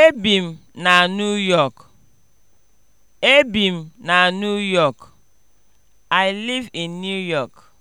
Ebi m na New York. m na New York. I live in New York.